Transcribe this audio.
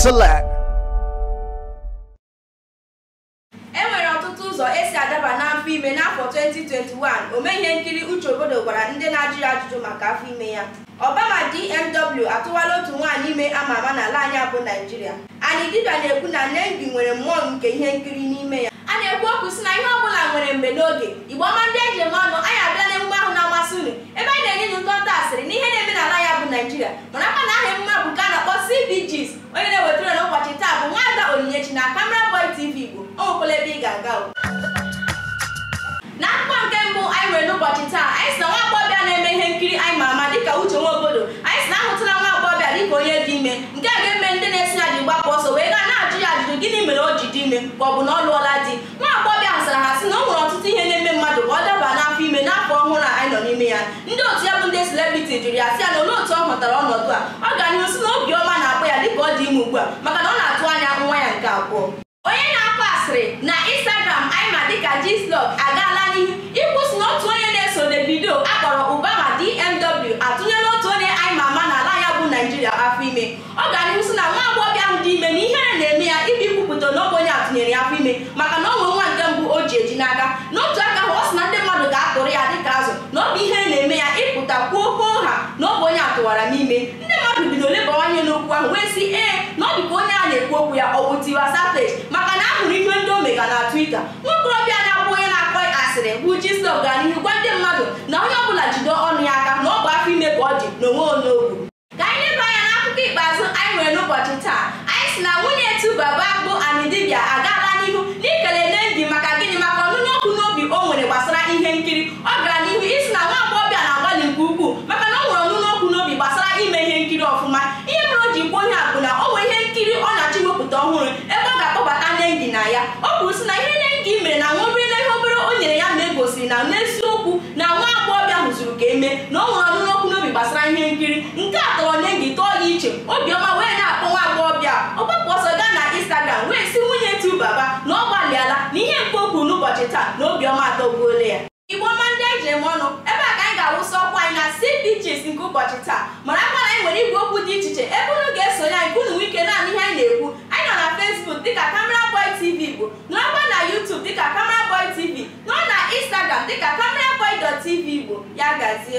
Select. enwere ọtụtụ ụzọ esi adaba n'afọ ime n'afọ 2021 omee ihe nkiri Uche Obodo gwara ndị na-ajụ ya ajụjụ maka afọ ime ya Obama DMW atụwala otu nwaanyị ime ama ama n'ala anyị bụ Naijiria. anyị dibịa na-ekwu na Nengi nwere mmụọ nke ihe nkiri n'ime ya a na-ekwu okwu si na ihe ọbụla nwere mgbe n'oge Igbo ọma ndị eji eme ọnụ anyị abịa na ahụ na-amasị unu ebe anyị na-enye ụtọ asịrị na ihe na-eme n'ala ya bụ Naijiria. na Camera Boy TV Igbo okwele ebe ị ga-aga na akpụkpọ nke mbụ anyị nwere n'ụbọchị taa anyị si na nwa agbọghọbịa na-eme ihe nkiri anyị ma ama dịka Uche obodo anyị si na ahụtụla nwa agbọghọbịa dịka onye dị ime nke a ga-eme ndị na-esi na dị ọsọ wee gaa na-ajụ ya ajụjụ gịnị mere o ji dị ime ma ọ bụ na ọ lụọla di nwa agbọghọbịa ahụ sara ha sị na o nwere ọtụtụ ihe ndị otu ya bụ ndị celebrity jụrụ ya sị ya na olee otu ọ hụtara ọnọdụ a ọ ga n'ihu si na obiọma ọma na-akpọ ya dịka ọ dị ime ugbu a maka na ọ na-atụ anya nwa ya nke abụọ onye na akpọ asịrị na Instagram anyị ma dịka Gslove agaala n'ihu ịkwụsị na otu onye na-eso Davido akpọrọ Ubama DMW atụnyela otu onye anyị ma ama n'ala ya bụ Naijiria afọ ime ọ ga n'ihu si na nwa agbọghọ ahụ dị ime na ihere na-eme ya ibi kwupụta n'oge onye atụnyere ya afọ ime maka gbawara n'ime ndị mmadụ bido leba anya n'okwu ahụ wee sị ee na ọ dịka onye a na-ekwu okwu ya ọ bụ Tiwa Savage maka na hụrụ ihe ndị omega mega na Twitter nwaokorobịa na-akpọ onye na-akpọ asịrị bụ Gistop gaa n'ihu gwa ndị mmadụ na onye ọ bụla jide ọnụ ya aka na ọ bụ afọ ime ka ọ dị n'onwe onogwu ka anyị leba anya n'akụkọ ikpeazụ anyị nwere n'ụbọchị taa anyị si na nwunye akpụ Bagbo Anidibia agaala n'ihu na ọ nwere ọnụnọkụ n'obi gbasara ihe nkiri nke a tọrọ nye gị tọọ gị iche obiọma wee na-akpọ nwa agbọghọbịa ọgbapụ ọsọ gaa na instagram wee si nwunye tu baba na ọ gbalịala na ihe nke okwu n'ụbọchị taa na obiọma atọgbuola ya igbo ọma ndị anyị jiri m ọnụ ebe a ka anyị ga-awụsa ọkwa anyị na CBGs nke ụbọchị taa mara akwa na anyị nwere igwe okwu dị iche iche ebe unu ga-esonye anyị nke unu nwike naanị ihe 呀，贵州。